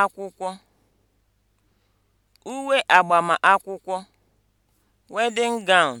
akwụkwọ, (uwe akwụkwọ, wedding gown)